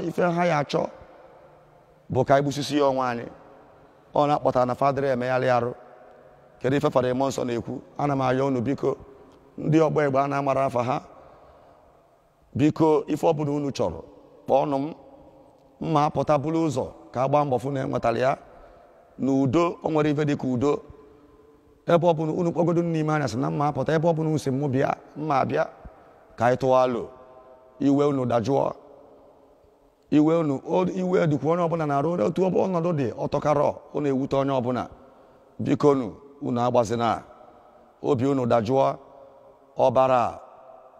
ife ha ya achọ bụ ka anyị gbusisi ya ọnwa anyị ọ na-akpọtara na fadịrị emegharị arụ kedu ife fara ime nsọ na-ekwu ana m ayọ unu biko ndị ọgba e egbe a na-amara afa ha biko ife ọbụla unu chọrọ kpọọnụ m mma apụta bụrụ ụzọ ka a gbaa mbọ fụ na enwetara ya na udo o nwere ife dị ka udo ebe ọbụla unu kpọgodo n'ime anya sị na mma apụta ebe ọbụla unu si m bịa mma bịa ka anyị tụwa alo iwe unu dajụọ iwe unu iwe dịkwa onye ọbụla na-arụ otu ọnọdụ dị ọtọkarọ unu ewute onye ọbụla bikonu unu agbazina obi unu dajụọ ọbara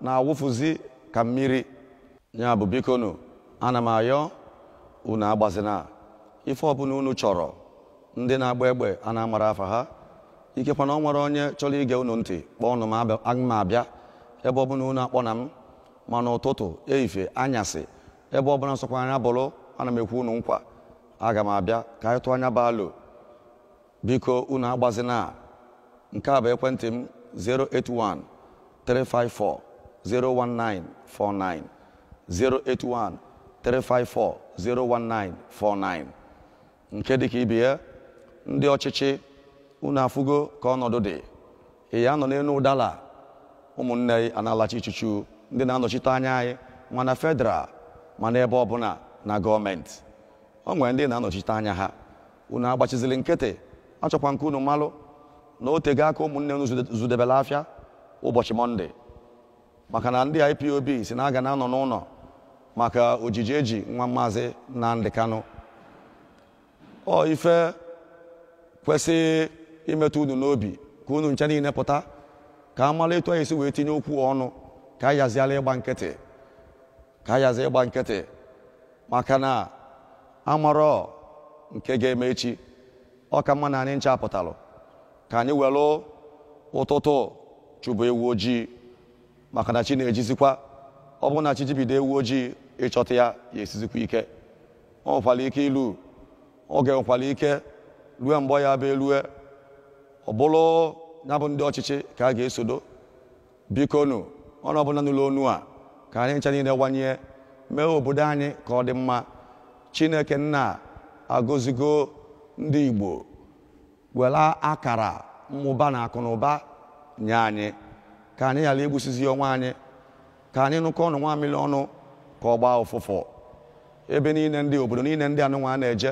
na-awụfuzi ka mmiri ya bụ bikonu ana m ayọ unu agbazina ife ọbụla unu chọrọ ndị na-agba egbe a na-amara afa ha ikekwa na ọ nwere onye chọrọ ige unu ntị kpọọ unu m abịa ebe ọbụla unu akpọ na m mana ụtụtụ ehifie anyasị ebe ọbụla nsọkwa anya bụrụ ana m ekwu unu nkwa aga m abịa ka anyị tụọ anya baalụ biko unu agbazina nke a bụ ekwentị m 081 354 081 354 nke dịka ibe ya ndị ọchịchị unu afụgo ka ọnọdụ dị ị ya nọ n'elu ụdala ụmụnne anyị analachi ndị na-anọchite anya anyị mana fedral mana ebe ọbụla na gọọmenti o nwere ndị na-anọchite anya ha unu agbachizili nkịtị achọkwa nke unu malụ na o aka ụmụnne unu zudebela afịa ụbọchị mọnde maka na ndị IPOB si na aga na-anọ n'ụlọ maka ojiji eji nwa maazị Nnamdi Kanu ọ ife kwesị imetụ unu n'obi ka unu nche niile pụta ka a mara etu anyị si wee tinye okwu ọnụ ka a yaziala ịgba nkịtị ka a yazi ịgba nkịtị maka na amarọ nke ga-eme echi ọ ka mma na anyị nchapụtalụ ka anyị welụ ụtụtụ chụbụ ewu ojii maka na chi na-ejizikwa ọ bụrụ na chi jibido ewu ojii ịchọta ya ya esizikwa ike ọ nwekwara ike ilu oge nwekwara ike rue mgbe ya bụ elue ọ bụrụ ya bụ ndị ọchịchị ka a ga-esodo bikonu ọnụ ọbụla n'ụlọ onu a ka anyị ncha niile gbanye mee obodo anyị ka ọ dị mma chineke nna agọzigo ndị igbo wela akara mmụba na akụnụba nye anyị ka anyị ghara igbusizi onwe anyị ka anyị nụkọ ọnụ nwa ọnụ ka ọ gbaa ụfụfụ ebe niile ndị obodo niile ndị anụnwa na-eje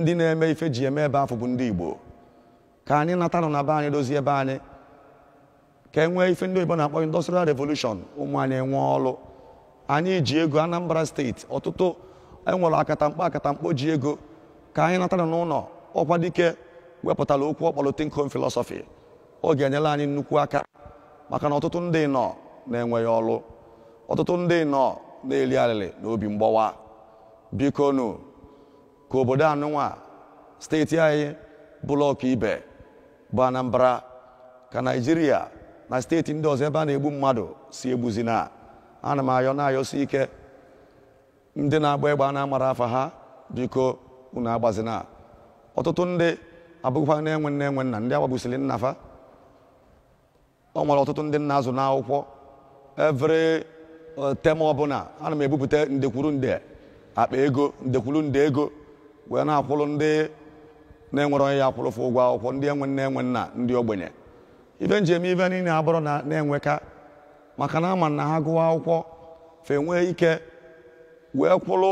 ndị na-eme ife ji eme ebe afọ bụ ndị igbo ka anyị natanụ na be anyị dozie ebe anyị ka e nwee ife ndị oyibo na-akpọ industrial revolution ụmụ anyị enwe ọlụ anyị ji ego Anambra steeti ọtụtụ enwere akatamkpo akatamkpo ji ego ka anyị natara n'ụlọ ọkwa dike wepụtara okwu ọkpọrọ think home oge ọ ga-enyela anyị nnukwu aka maka na ọtụtụ ndị nọ na-enweghị ọlụ ọtụtụ ndị nọ na-eli arịrị na obi mgbawa biko ka obodo anụnwa steeti anyị bụlọkụ ibe bụ Anambra ka Naijiria na steeti ndị ọzọ ebe a na-egbu mmadụ si egbuzi na ana m ayọ na-ayọsi ike ndị na-agba egbe a na-amara afa ha biko unu agbazina ọtụtụ ndị abụghịkwa na-enwe nne enwe nna ndị agbagbusiri nnafa fa ọ nwere ọtụtụ ndị nna azụ n'akwụkwọ evere uh, tem ọbụla ana m ebupụta ndekwuru nde akpa ego ndekwuru nde ego wee na-akwụrụ ndị na-enwere onye ya akwụrụfụ ụgwọ akwụkwọ ndị enwe nne enwe nna ndị ogbenye ibe njem ibe niile abụrụ na na-enweka maka na ama na ha gụwa akwụkwọ fe nwee ike wee kwụrụ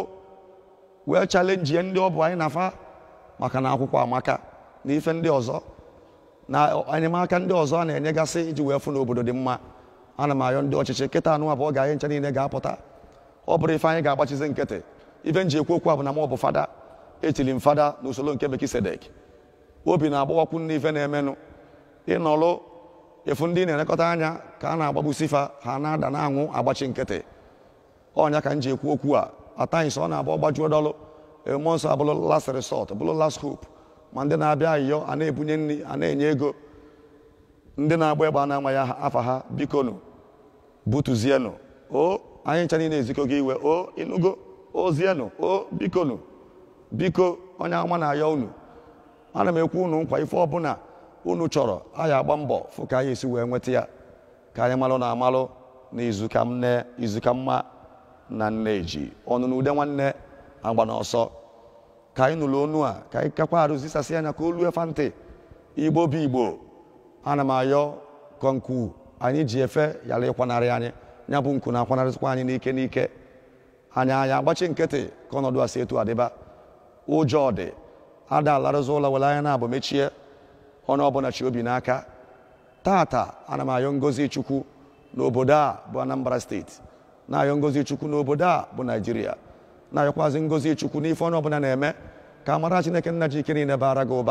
wee chalenji ndị ọ bụ anyị na maka na akwụkwọ amaka na ife ndị ọzọ na enyemaka ndị ọzọ a na-enyegasị iji wee fụ n'obodo obodo dị mma ana m ayọ ndị ọchịchị kịta anụ abụọ ga-anyị nche niile ga-apụta ọ bụrụ ife anyị ga-agbachizi nkịtị ife nji ekwu okwu a na m ọ bụ fada etiri m fada n'usoro nke Mekisedek obi na-agbawakwu ife na-emenụ ịnọlụ efu ndị na-elekọta anya ka a na-agbagbusi fa ha na-ada na anwụ agbachi nkịtị ọnya ka m ji ekwu okwu a atanyị sọ ọ na-abụ ọgbajuo dọlụ mmụọ nsọ abụrụ last resort bụrụ las hope ma ndị na-abịa ayịyọ a na-ebunye nri a na-enye ego ndị na-agba egbe a na ya afa ha bikonu butuzienu o anyị ncha niile ezikọ gị iwe o ịnụgo ozienu o bikonu biko onye ama na-ayọ unu ana m ekwu unu nkwa ife ọbụla unu chọrọ anyị agba mbọ fụ ka anyị esi wee nweta ya ka anyị malụ na amalụ na izuka nne izuka mma na nneji ọnụ na ude nwanne agba n'ọsọ ka anyị nụrụ onu a ka anyị kakwa arụzisasị anya ka olu efa ntị igbo bụ igbo ana m ayọ kọnku anyị ji efe yara ịkwanarị anyị nya bụ nku na-akwanarịsịkwa anyị n'ike n'ike anyị anya agbachi nkịtị ka ọnọdụ a si etu adịba ụjọ dị ada alarụzi ụlọ were anya na abụ mechie onye ọbụla chi obi n'aka tata ana m ayọ ngozi chukwu n'obodo a bụ anambra steeti na-ayọ ngozi chukwu n'obodo a bụ naijiria na-ayọkwazi ngozi chukwu n'ife onye ọbụla na-eme ka amara chineke nna ji ike niile bara gị ụba